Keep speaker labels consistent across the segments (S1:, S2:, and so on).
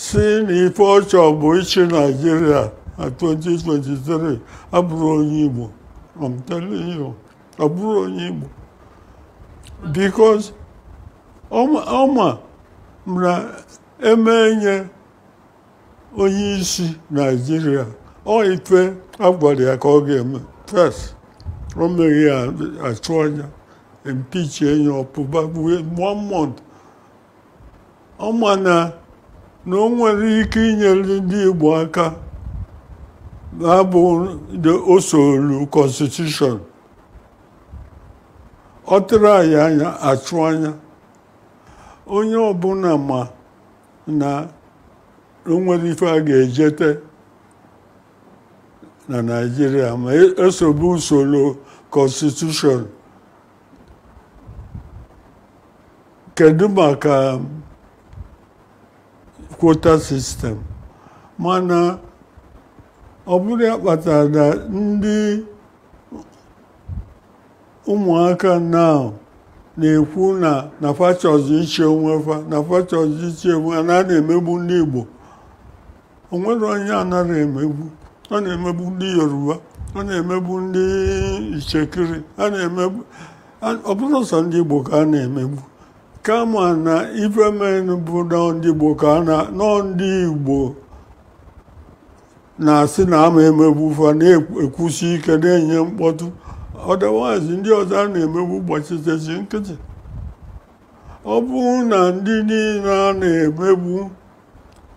S1: si n'ife ọchọ bụ ịchị naijiria na 2023 abụrụ onye igbo I'm telling you abụrụ onye igbo because ọma na eme nye onye isi naijiria ọ ife agwara ya ka ọ ga-eme first ọ meghị ya achụ anya impeach enye ọpụba one month ọma na na o nwere ike inyere ndị Igbo aka na-abụ osolu konstitushọn ọ tụrụ anyị anya achụ anya onye ọbụla ma na o nwere ife a ga-ejete na naijiria ma esobe e usoro konstitushọn kedu maka kwota sistem mana ọ bụrụ ya kpatara na ndị ụmụaka na na-ekwu na na fachọzi iche onwe fa na fachọzi iche onwe a na emegbu ndị Igbo nwere onye anaghị emegbu ọ na-emegbu ndị Yoruba ọ na-emegbu ndị Ichekiri ọ bụrụ sọ ndị Igbo ka a na-emegbu kama na ifemen bụ ndị Igbo ka nọ ndị Igbo na-asị na ama emegbufa na-ekwusi ike na-enye mkpọtụ ọdawazi ndị ọzọ a na-emegbu gbachitesi nkịtị ọ bụrụ na ndị niile a na-emegbu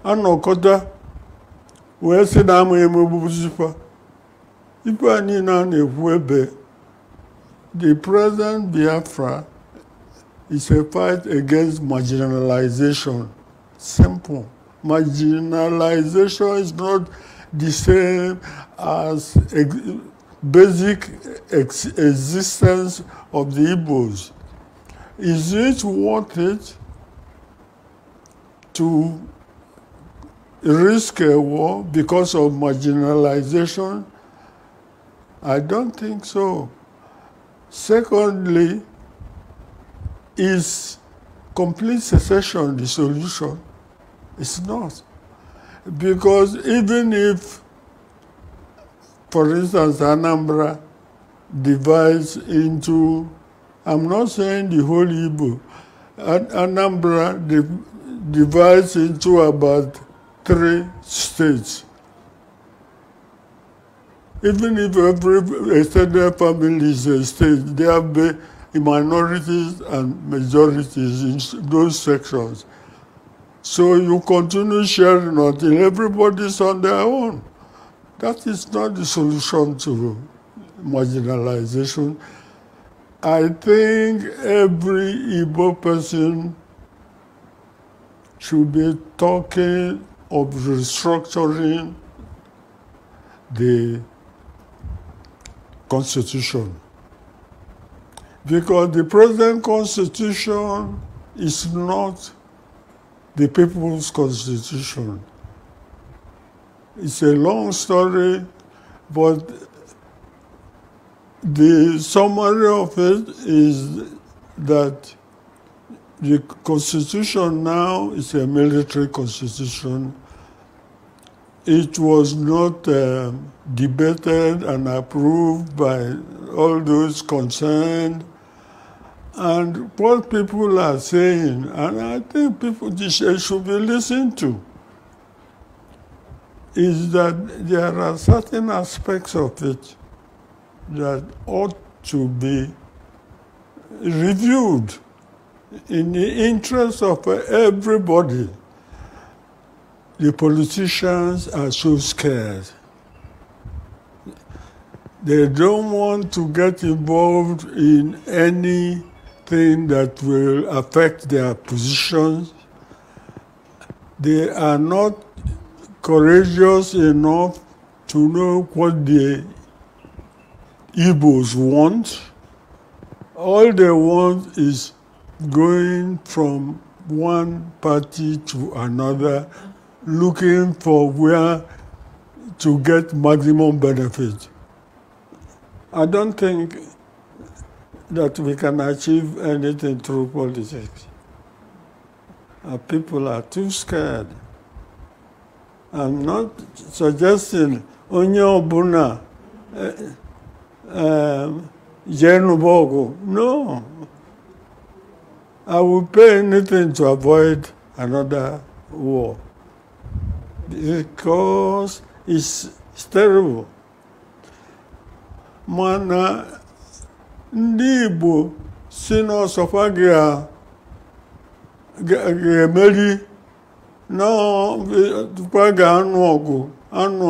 S1: anọkọta wee sị na ama emegbuzifa ife a niile a na-ekwu ebe the present Biafra It's a fight against marginalization. Simple. Marginalization is not the same as ex basic ex existence of the Igbos. Is it worth it to risk a war because of marginalization? I don't think so. Secondly, Is complete secession the solution? It's not. Because even if, for instance, Anambra divides into, I'm not saying the whole Igbo, Anambra divides into about three states. Even if every extended family is a state, there have been In minorities and majorities in those sections. So you continue sharing until everybody's on their own. That is not the solution to marginalization. I think every Igbo person should be talking of restructuring the constitution. because the present constitution is not the people's constitution. It's a long story, but the summary of it is that the constitution now is a military constitution. It was not uh, debated and approved by all those concerned and what people are saying, and I think people should be listened to, is that there are certain aspects of it that ought to be reviewed in the interest of everybody. The politicians are so scared. They don't want to get involved in any thing that will affect their positions. They are not courageous enough to know what the Igbos want. All they want is going from one party to another, looking for where to get maximum benefit. I don't think that we can achieve anything through politics. Uh, people are too scared. I'm not suggesting onye ọbụla eh, eh, jee nụba No. I will pay anything to avoid another war because it's, terrible. Mana ndị Igbo si a ga-emeri natụkwa ga-anụ ọgụ anụ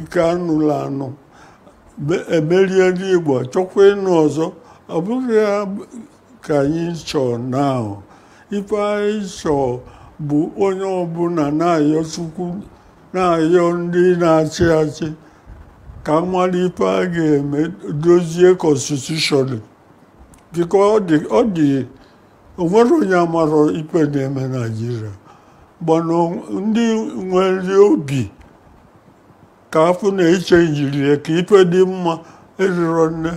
S1: nke anụla anụ emerie ndị Igbo chọkwa ịnụ ọzọ ọ bụghị ka anyị chọọ na ife anyị chọọ bụ onye ọbụla na na-ayọ ndị na-achị achị ka ife a ga-eme dozie konstitushọn biko ọ dị onwere onye amara ikpe na-eme naijiria gbana ndị nwere obi ka afụ na eche ya ka ikpe dị mma eriro nne